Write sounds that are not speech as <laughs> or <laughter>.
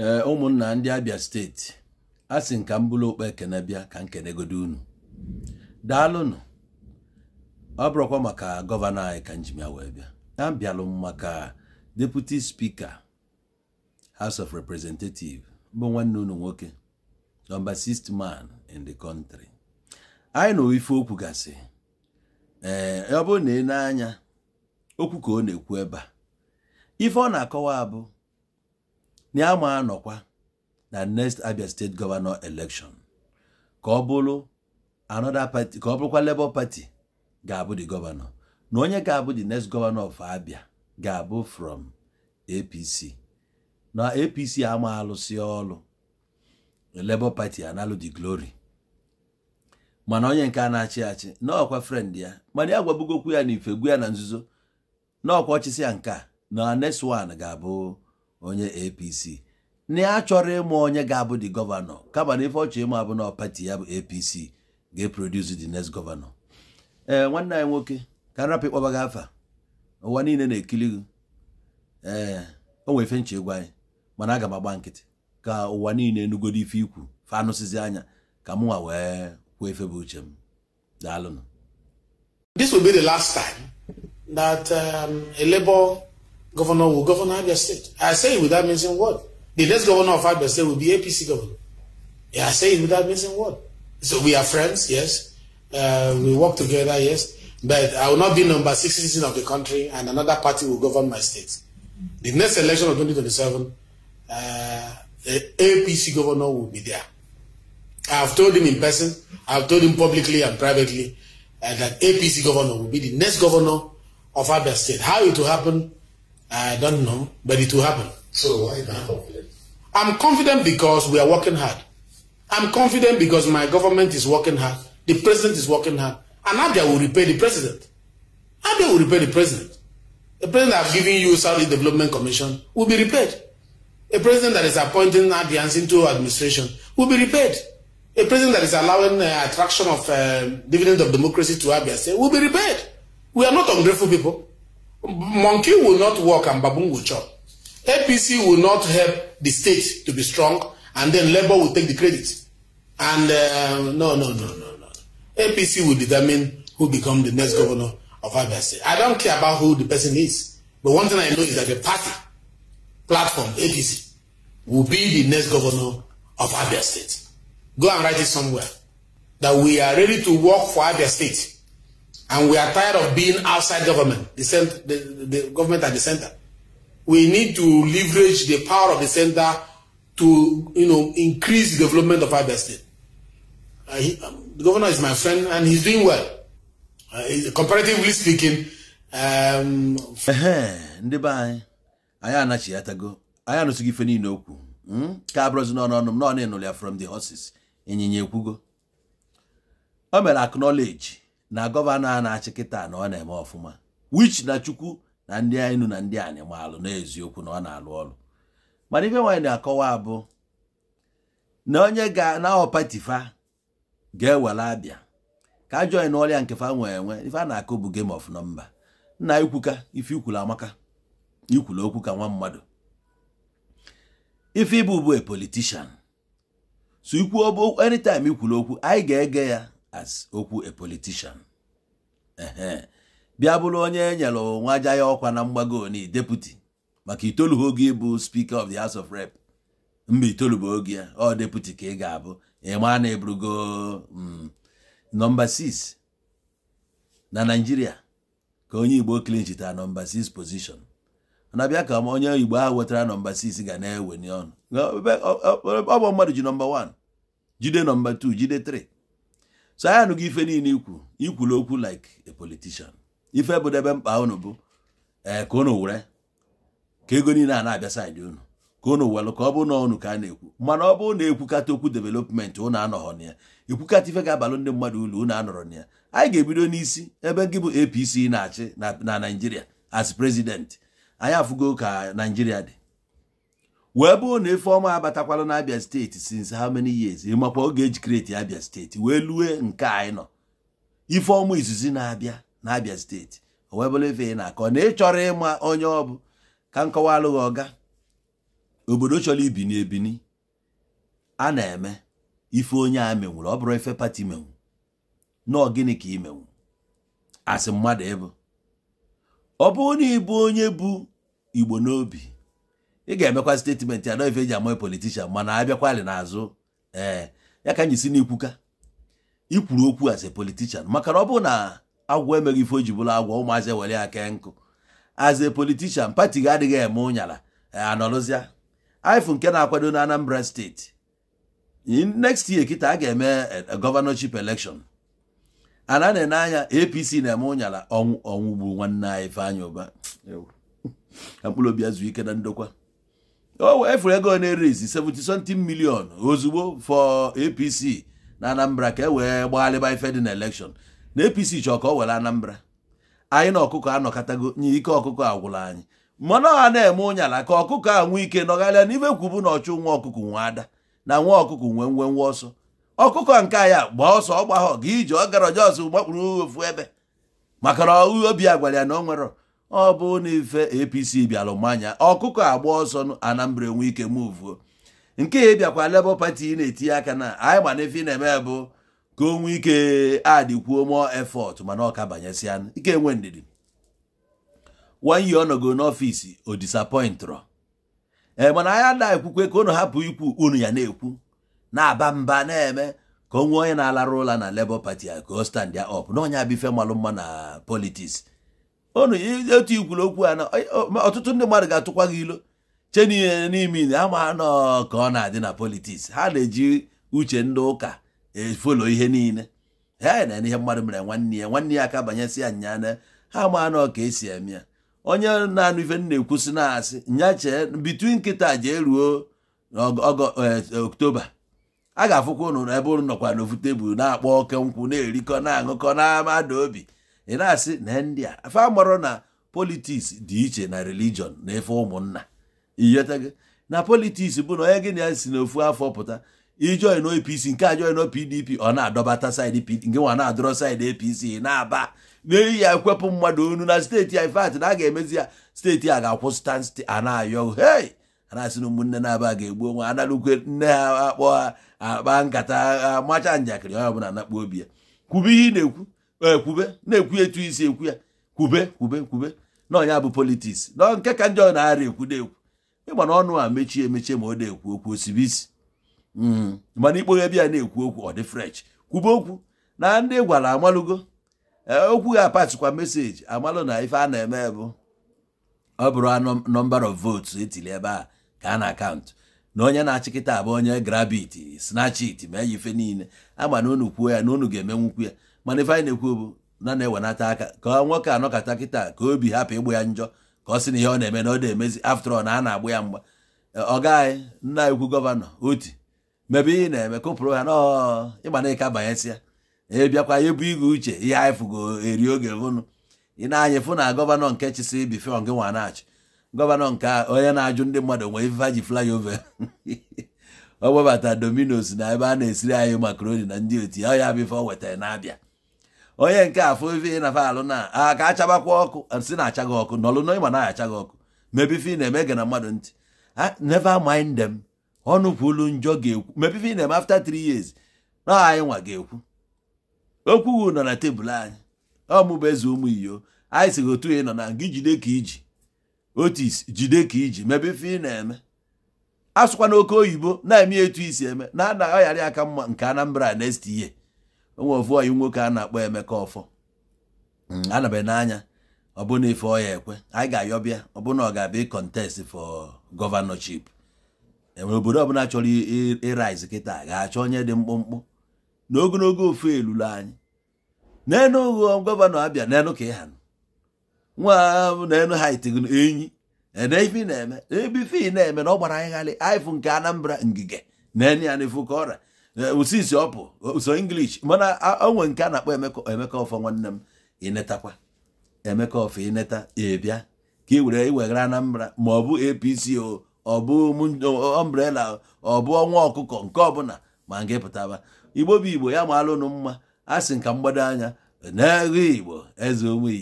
ee eh, ụmụnna ndị abịa steeti a sị nka m bụrụ okpe ekene bịa ka nkenegodo unu daalụnụ ọ bụrụkwa maka gọvanọ anyị ka nji ya wee bịa abịalụ m maka deputi spika house of representative bụ nwanne unu nwoke nọmba sist man in the country anyị na ife okwu gasị ee eh, ọ bụrụ na ị na-anya okwu ka ọ na-ekwu ebe a ife ọ na-akọwa abụ ya ma anọkwa na next Abia state governor election ka ọ bụrụ bụrụkwa Labour Party ga-abụ the governor na onye ga-abụ the next governor of Abia ga-abụ from APC na APC ama alụsị ọlụ Labour Party analụ the glory mana onye nke a na-achị achị n'ọkwa friend ya mana ya gwabugokwu ya na ife gwu ya na nzuzo n'ọkwa ọchịsị ya nke na next one ga-abụ onye apc na a chọrọ ịmụ onye ga-abụ dị gọvanọ kama na ife ọchọ ịmụ abụ na pati ya bụ apc ga-eproduce the next gọvanọ ee eh, nwanne anyị nwoke ka nrapụ ịkpọba gị afa ụwa niile na-ekili gị ee eh, o nwere ife ịgwa anyị mana aga m agba nkịtị ka ụwa niile enugodo ife ikwu fa anụsizi anya ka mụnwa wee kwuo efe bụ uche m daalụnụ will be the last time that um, a Labour Governor will govern Abia State. I say it without missing word. The next governor of Abia State will be APC governor. Yeah, I say it without missing word. So we are friends, yes. Uh, we work together, yes. But I will not be number six citizen of the country and another party will govern my state. The next election of 2027, uh, APC governor will be there. I've told him in person, I've told him publicly and privately uh, that APC governor will be the next governor of Abia State. How it will happen, I don't know, but it will happen. So why are you confident? I'm confident because we are working hard. I'm confident because my government is working hard. The president is working hard. And Abia will repay the president. Abia will repay the president. The president I've given you Saudi Development Commission will be repaid. A president that is appointing Abians into administration will be repaid. A president that is allowing the uh, attraction of uh, dividend of democracy to Abia State will be repaid. We are not ungrateful people. monkey will not work and baboon will chop. APC will not help the state to be strong and then Labour will take the credit. And uh, no, no, no, no, no. APC will determine who become the next governor of Abia State. I don't care about who the person is. But one thing I know is that the party platform, APC, will be the next governor of Abia State. Go and write it somewhere. That we are ready to work for Abia State And we are tired of being outside government, the, center, the, the government at the center. We need to leverage the power of the center to you know, increase the development of Abia State. Uh, he, um, the governor is my friend and he's doing well. Uh, comparatively speaking, um, ndị be anyị anyị anachi ya tago anyị anụsịghị ife niile okwu hmm? ka no n'ọnụ ọnụ m ya from the horses ịnyịnya ekwugo o mere acknowledge na gọvanọ a na-achị kịta na ọ na-eme ọfụma wich na chukwu na ndị enu na ndị anyị animalụ n'eziokwu na ọ na-alụ ọrụ mana ife nwaanyị na-akọwa abụ na onye ga na ọpatifa ga-ewere abịa ka ajọin ọrịa nke fa nwee enwe ife a na-akụ bụ game of nọmba nna ikwuka ife ikwuru amaka ikwuru okwu ka nwa mmadụ ife ịbụ bụ a politician so ikwu anytime ikwulu okwu anyị ga-ege ya as okwu a politician bịa bụrụ onye e nyere nwa ja ya ọkwa na mgbago oni deputy maka itolu oge ịbụ speaker of the house of rep mba itolu oge ya ọ deputy ka ị ga-abụ ịma na ebrugo mm, nọmba 6 na naijiria ka onye igbo klinchita nọmba 6 position na bịa ka onye igbo ahụ wetara nọmba 6 ga na-eweni ọnụ ọ bụ mmadụ ji nọmba 1 jide nọmba 2 jide 3 so anyị anụghị ife niile ikwu ikwulu okwu like a politician ife debe mkpa unu bụ ee eh, ka unu were ka ego niile a na-abịa saịdị unu ka unu welụ ka ọ bụ na unu ka a na-ekwu mana ọ bụrụ na ekwukata okwu development unu anọghọ na ya ekwukata ife ga-abalụ ndị mmadụ ulu unu anọrọ na ya anyị ga-ebido n'isi ebe gị bụ APC na-achị na naijiria as president anyị afụgo ka naijiria dị wee bụrụ na Ifeoma abatakwala na Abia steeti since how many years ịmakwa oge eji kreti Abia steeti wee lue nke anyị nọ Ifeoma izizi na-abịa na Abia steeti o wee bụrụ ife ị na-akọ na ịchọrọ ịma onye ọ bụ ka nkọwa alụghị ọga obodo chọrọ ibini ebini a na-eme ife onye a menwuru ọ bụrụ ife pati menwu na gịnị ka ị menwu asị mmadụ ịbụ ọ bụrụ na ịbụ onye bụ Igbo n'obi ị ga-emekwa statement anọ ife eji amaghị politishan mana abịakwali n'azụ ee ya ka anyị si n'ikwuka ikwuru okwu as a politician maka na ọ bụrụ na agwọ emeghị ife o bụrụ agwọ ụmụazị ewere ya kee nkụ as a politician pati gị adịghị eme ụnyala anọrụzịa ifu nke na-akwado na Anambra steeti next year kịta a ga-eme e, governorship elekshon ana na-ene anya APC na-eme ụnyala ọnwụ ọnwụ gburu nwanne anyị Ifeanyi Ụba mkpụrụ <laughs> obi azụ ike na ndokwa Oh, ewefuru ego na-erezi 70 something ozugbo for apc na anambra ka e wee gbagharịba ife dị na election na apc chọọ ka ọ were anambra anyị na ọkụkọ anọkọtago nye ike ọkụkọ agwụla anyị mana ọha na-eme ụnyala ka ọkụkọ a nwee ike nọgharịa n'ibe kwubu na ọchụ nwa ọkụkọ nwe ada na nwa ọkụkọ nwe nwe nwe ọsọ ọkụkọ nke ya gbaa ọsọ ọgbahọ gị ije ọ gara ọjọọ ọsọ gbakpụrụ ofu ebe maka na obi a ya na ọ nwere ọ bụ na apc bịalụ mmanya ọkụkọ agba ọsọ anambra enwe ike muvuo nke ya bịakwa Labour Party na-etinye aka na anyị gbana ife na-eme bụ ka o nwee ike adịkwuo mụọ efọt mana ọka banyesịa ike enwe ndidi wanye ọ nọgo n'ọfịs o disappointrọ ee mana anyị ada ekwukwe ka unu hapụ ikwu unu ya na-ekwu na-aba mba na-eme ka o nwee onye na-alarụ ụla na Labour Party a ka o stand ya up na onye abịa ife malụ mma na politiks onu otu ikwuru okwu a na ọtụtụ ndị mmadụ ga-atụkwa gị ilo che n'ime ile ama nọ ka ọ na-adị na politiks ha na-eji uche ndị ụka efolo ihe niile ha na ihe mmadụ mere nwanne ya nwanne ya aka banyesị ya nyaa ha ama nọ ka esi eme ya onye na-anụ ife na-ekwusi na-asị nya chee bitu nkịta jee ruo e, oktoba a ga-afụkwa ụnụ ebe ụnụ nọkwa n'ofu tebụl na-akpọ oke nkwụ na-erikọ na-aṅụkọ na amada obi ị na-asị na ndị a afa amarọ na politiks dị iche na religion na efe ụmụnna gị na politiks bụ na onye gị na ya si n'ofu afọ pụta ijoin APC nke a join PDP ọ na-adọbata saịdị PDP nke nwa na-adọrọ saịdị APC na-aba n'eyi ya ekwepụ mmadụ onu na steeti ya na a ga-emezi ya steeti a ga-akwụsịta sti ana-ayọ hei ana-asị na ụmụnne na-aba ga-egbu onwe analụkwe nne ha akpọ ha akpa nkata amacha njakịrị onye ọbụla nakpuo obi ya kwube ihe ị na-ekwu ekwube eh, na-ekwu etu isi ekwu ya kwube kwube kwube na ọnya bụ politiks na nke ka ndị ọ na-arịa ekwu na-ekwu ịgba na ọnụ a mechie emechie ma ọ na-ekwu okwu osibi isi hmm. mana ikpoghe ebe ya na-ekwu okwu ọ dị french kwube okwu na ndị gwara amalụgo eh, okwu ga apatikwa meseji amalụ na ife a na-eme bụ ọ bụrụ nọmba of votes etili ebe a ka a na-akaụntụ na onye na-achịkịta abụ onye grabit snachit ma ya ife niile ama na unu kwuo ya na unu ga-emenwukwu ya mana ife anyị na-ekwu obu na na-ewenata aka ka nwoke anọkata kịta ka obi hapụ ịgbụ ya njọ ka ọ sị na ihe ọ na-eme na ọ na-emezi after na a na-agbụ ya mgba ọ gaghị nna ekwu gọvanọ oti mebe ihe na-eme kụpụrụ ha n'ịgba na ịka banyesịa ya ebu igwe uche ihe anyị fụgo eri oge vụnụ ị na-anya fụ na gọvanọ nke chịsị bife gị nwa na-achị gọvanọ nke onye na-ajụ ndị mmadụ nwee ife ji flyover <laughs> ọ webata dominos na ebe a na-esiri anyị makaroni na ndị oti ọ ya o wetara na-abịa onye nke afọ ife na alụ na a ka achabakwa ọkụ si na achaghị ọkụ nọlụ na ịma na achaghị ọkụ mebi ife na-eme gị na mmadụ ntị neva mind them ọnụ kwulu njọ ga-ekwu mebi ife na-eme after three years na anyị nwa ga-ekwu okwu okwughị nọ na tebụl anyị ọmụbụ eze ụmụ iyo anyị si gị otu ị nọ na gị jide ka iji otis jide ka iji mebe ife ị na-eme asụkwa n'oke oyibo na-eme etu isi eme na anaghị ọghara aka mma nke Anambra next year onwe ofu ọyị nwoke a na-akpọ Emeka Ọfọ mm. anabe n'anya ọbụna ife ọya ekwe anyị ga-ayọbịa ọbụna ọ ga-abịa contest fọ gọvanọship enwere obodo ọbụla chọrọ ịriz kịta ga-achọ onye dị mkpụmkpụ n'ogologo ofu elulu anyị n'enu ụgwọ gọvanọ abịa n'enu ka ịha nwa n'enu hait enyi na-eme na-eme na ọ gbara anyị ghalị anyị nke Anambra ngige na-enye ya ifu ka ọrịa osisi ọ bụ inglish English mana onwe nke a na-akpọ Emeka Ọfọ nwanne m ịnetakwa Emeka Ọfọ ịneta ịbịa ka e were Anambra ma ọ bụ APC ọbụ ọ bụ ọnwa ọkụkọ nke ọbụla ma nke pụtaba Igbo bụ Igbo ya maalụ ụnụ mma a sị nka mgbado anya na Igbo eze onwe